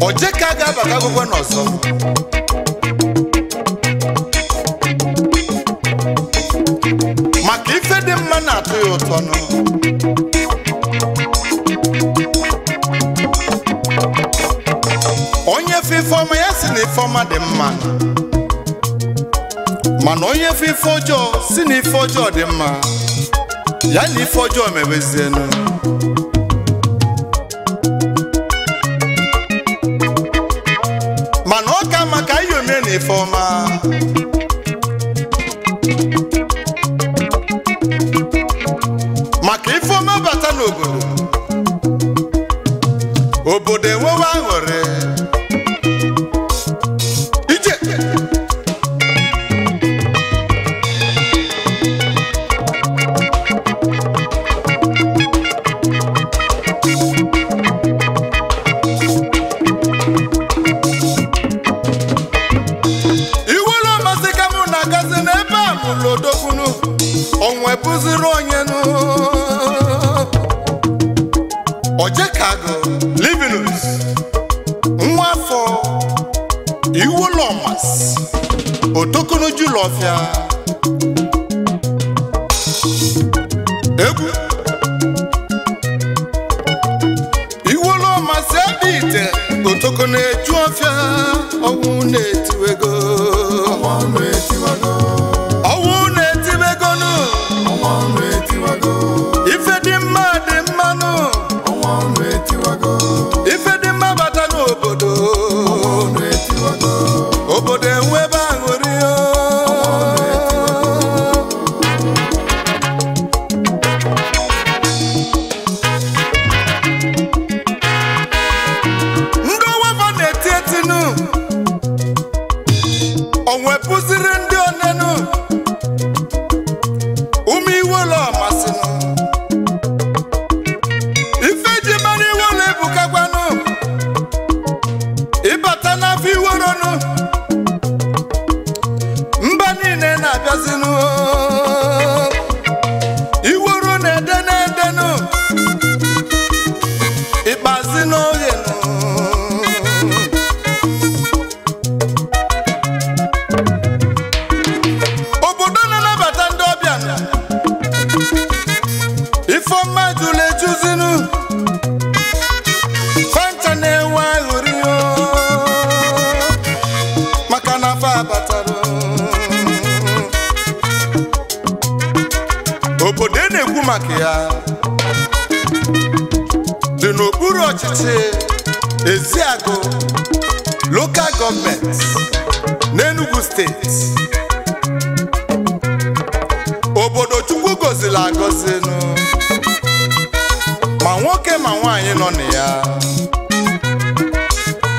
oje ka a ga-abaka agụgwọ n'ọzọ maka ife dị mma na-atọ ya ụtọ onye fe ifeọma ya si na ife ifeọma dị mma mana onye fe ife ọjọọ si na ife ọjọọ dị mma ya na ife ọjọọ mebezienụ for my ma nwoke ma nwaanyị nọ na ya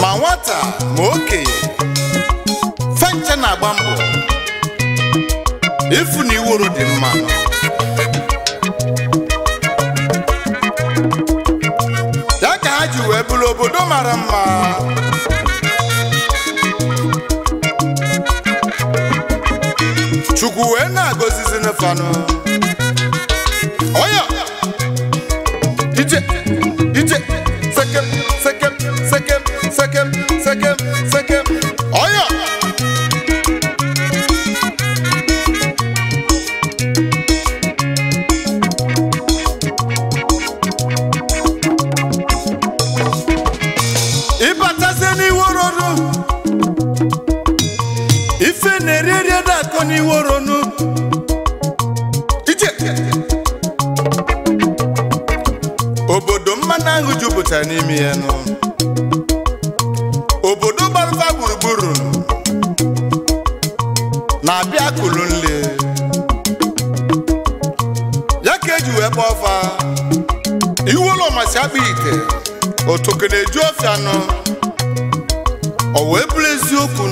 ma nwata ma okenye fenche na-agba mbọ ifu na iworo dị mma ya ka ha ji wee bụrụ obodo mara mma chukwu wee na-agọzizi n'ụfọdụ Oya! DJ, DJ, sekem, sekem, sekem, sekem, sekem, sekem. egwu jupụtara n'ime ya nụ obodo gbarụfa gburugburu na-abịa kụlụ nle ya ka eji wee kpọọ fa iwu ụlọ masị akpa ite otoke na-eju ofe anọ o wee bụrụ eziokwu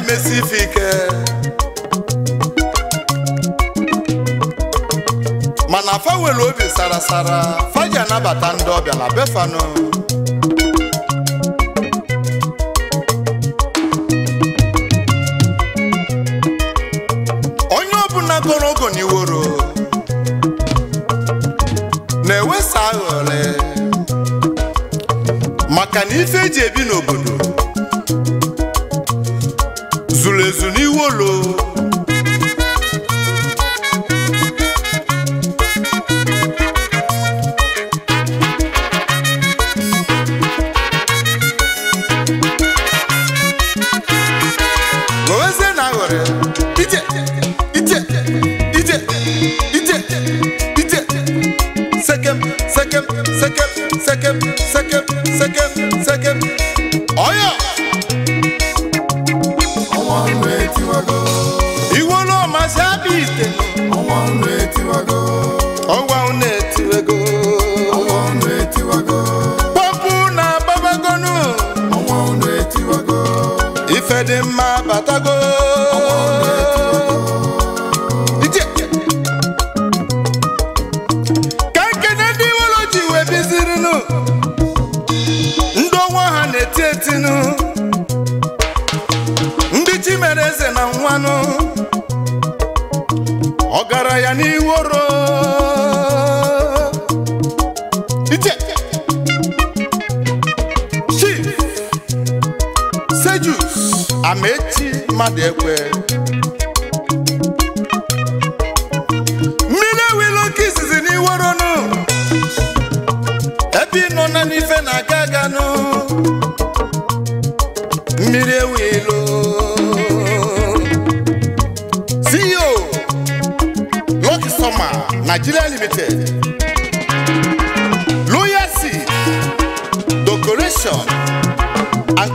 na-emesi ife ike mana fa nwere obi sara fa ji anabata ndị ọbịa na befanụ onye ọbụla goro ogo n'iworo na-ewesa aghọle maka na ife eji ebi amaechi mmadụ ekwe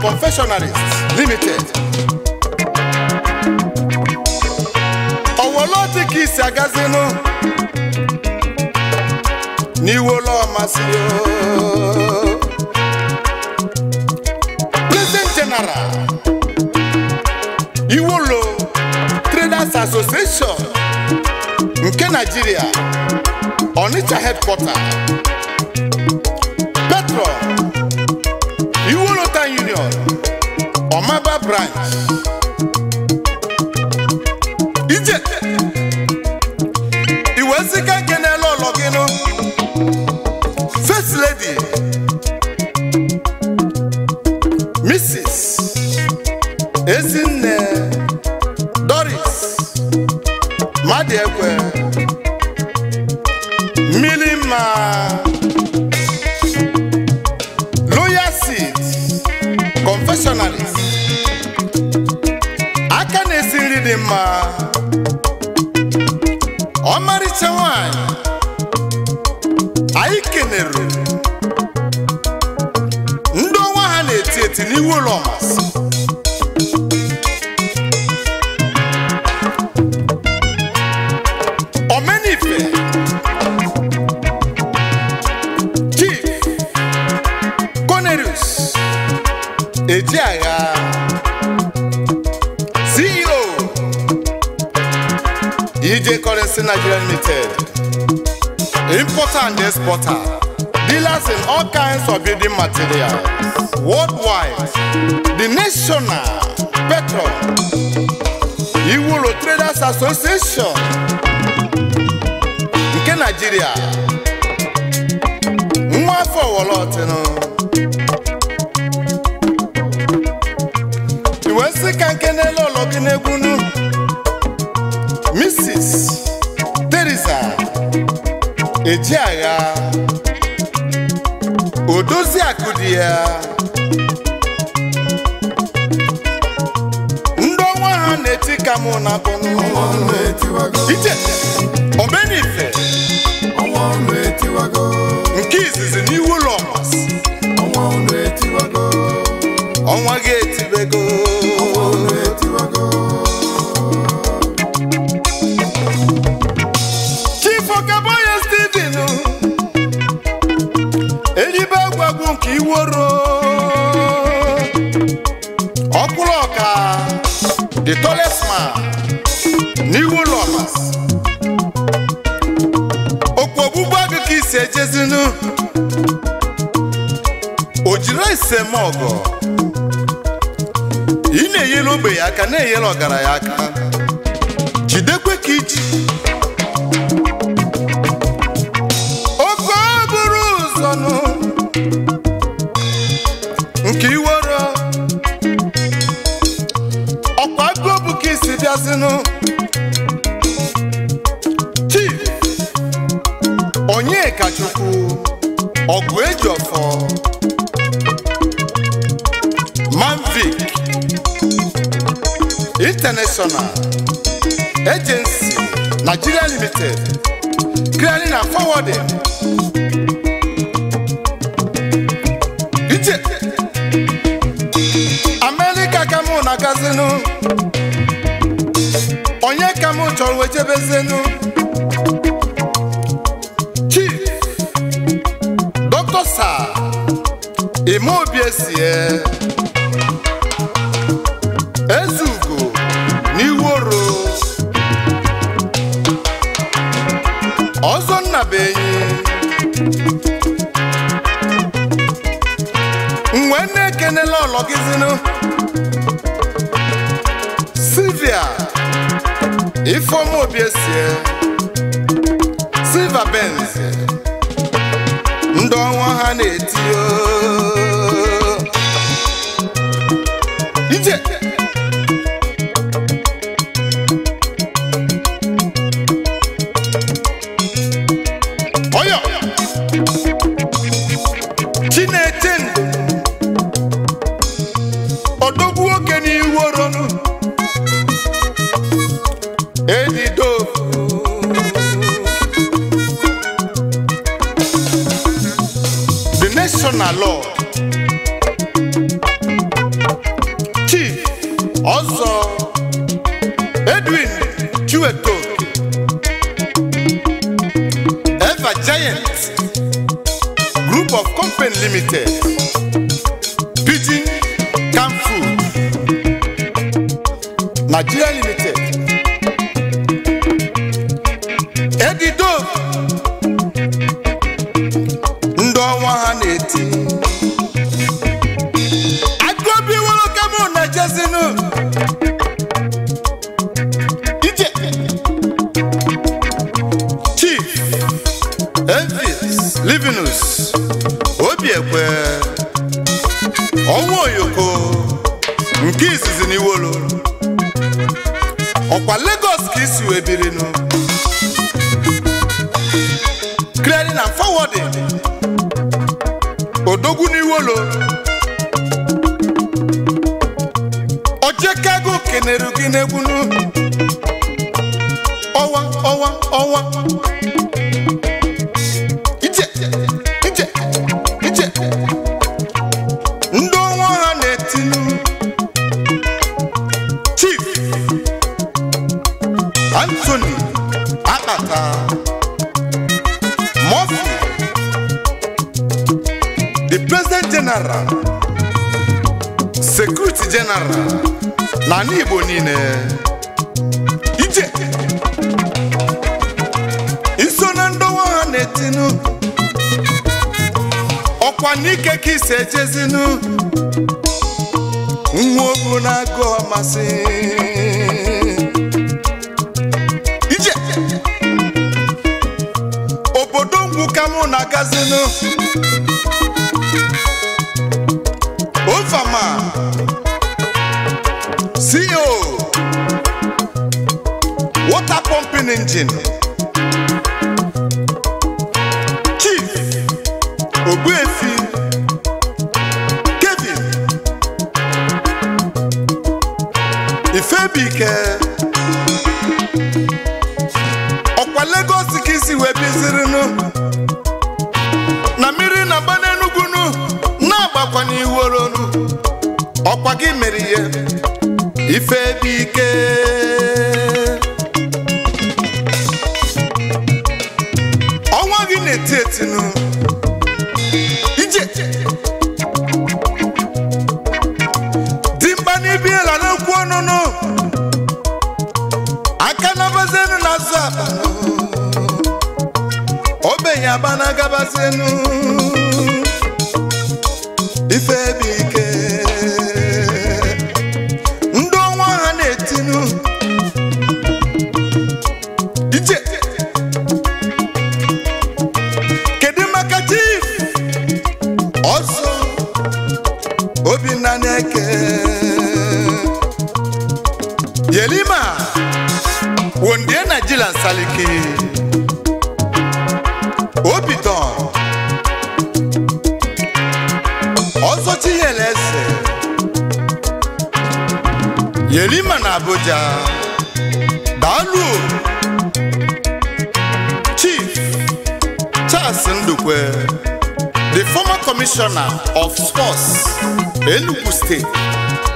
confectionaries limited owolo dị ka isi agazinụ n'iwolo ọmasị President General Iwolo Traders Association nke Nigeria Onitsha headquarters right. Ije iwe sika nke first lady Mrs. Ezinne Doris Madiekwe Milima Loyal Seed Confessionalist dị mma ọmarịcha nwanyị anyị kenere ndị ọnwa ha na-eti eti n'iwu ụlọ masị DJ Currency Nigeria Limited. Importer and exporter. Dealers in all kinds of building material, Worldwide. The National Petrol. Iwuro Traders Association. Nke Nigeria. Nwa afọ Wọlọtịnụ. Iwe nsị ka nke n'elu ụlọ gị n'egwu eji agha o dozie akụ dị ya ndị ọnwa ha na-eti ka mụ na bụ iche omenife nke izizi n'iwu ụlọ iworo ọkwụrụ ọka the tallest man n'iwu lovers okwu ogbugbu agụ ka isi ejezinu o jiri esemọgụ ị na-enyere ogbe ya aka na-enyere ọgaranya aka jidekwe ka iji Limited, clearing and forwarding. Ije America ka mụ na-agazinu onye ka mụ chọrọ wee jebezenu Chief Dr. Sir Imeobi Esie ekene lọlọ gịzinụ Silvia Ifeoma Obiesie Silva Benz ndị ọnwa ha na etiyo ije oyo Chineche Nigeria Limited edido ndị ọnwa ha na-eti agụobi nwoke mụ na jezinu ije chief Elvis Livinus Obiekwe ọnwa Oyoko nke izizi n'iwolo ọkwa Lagos ka isi wee nụ clearing and forwarding odogwu n'iwolo ojekego kenere gị n'ubi Anthony Akpata Murphy the President General Security General na ala niile ije iso na ndọwa ha na-etinu ọkwa n'ike ka isi nwa na-agụ ọmasị ya bana gabazinu ife ebe ike Yerima na Abuja daalụ Chief Charles Ndukwe the former commissioner of sports Enugu State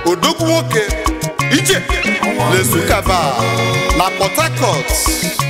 odogwuoke nwoke Ije Lesukaba na Port Harcourt